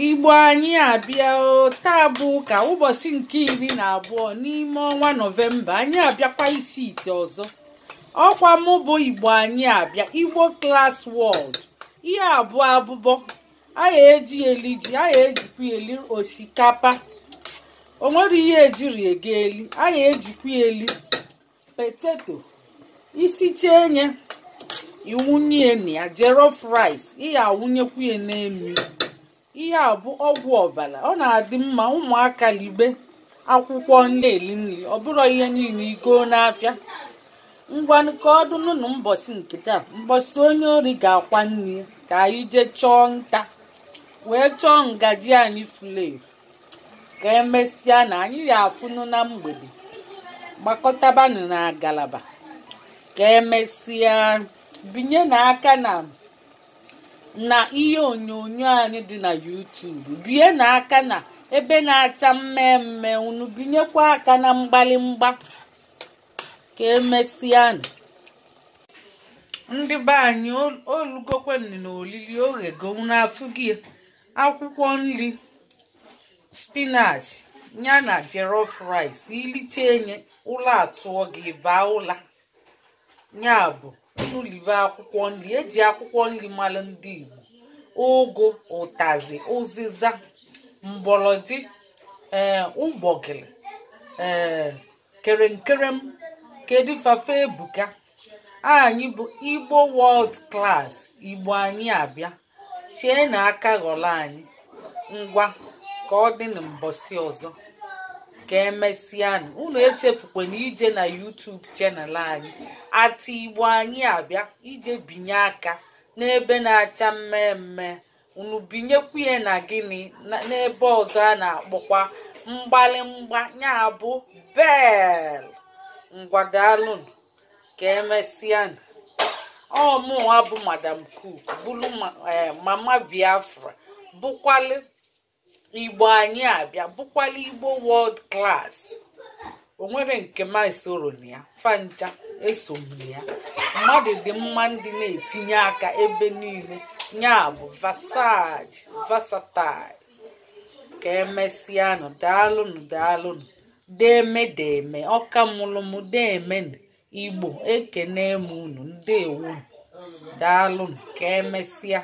igbo anyị abịa taa bụ ka ụbọchị nke iri na abụọ n'ime ọnwa nọvemba anyị abịakwa isi ite ọzọ ọkwa mụ bụ igbo anyị abịa igbo klas wọld ihe abụọ abụbọ anyị eji eli ji anyị ejikwa eli osikapa onwere ihe ejiri ege eli anyị ejikwa eli peteto isite iwunye na ya jollof rice ihe ihe a bụ ọgwụ ọbara ọ na-adị mma ụmụaka libe akwụkwọ na-eli nri ọ bụrụ ihe niile igoo n'afịa ngwanụ ka ọ dụnụ na mbọsị nke taa mbọsị onye ori ga-akwa nri ka anyị jee chọọ nta wee chọọ ngaji anyị furu efu ka emesịa na anyị ya afụnụ na mgbede gbakọtabanụ na ngalaba ka emesịa binye n'aka na na ihe onyonyo anyị dị na YouTube bie n'aka na ebe na-acha mmemme unu binyekwa aka na mgbalimgba ka emesianụ ndị be anyị olugokwenụ na olili oghego n'afụgị akwụkwọ nri spinach ya na jollof rice iliche enye ụlọ atụọ gị baa ụla ya bụ unu liwe akwụkwọ nri eji akwụkwọ nri mara ndị Igbo ụgụ ụtazị ụzịza mgbọrọdị ee eh, ụgbọgịrị ee eh, kerenkerem kedu fafe ebuka anyị bụ igbo world class igbo anyị abịa chie na aka ghọrọ anyị ngwa ka ọ dị na ọzọ ka emesịanụ unu na ije na YouTube chanel anyị ati igbo anyị abịa ije binye aka n'ebe na-acha mmemme unu binyekwu ya na gịnị n'ebe ọzọ a na-akpọkwa mgbalimgba ya bụ bel ngwadalụnụ ka emesịanụ ọmụwa bụ madam cook bụrụ eh, mama biafra bụkwalị igbo anyị abịa bụkwala igbo wọld class o nwere nke m esoro na ya fancha eso ya mmadụ dị mma ndị na-etinye aka ebe niile ya bụ vasaji vasatai ka emesịanụ daalụnụ daalụnụ deme deme ọka mụrụ igbo ekene m unu ndewonu daalụnụ ka emesịa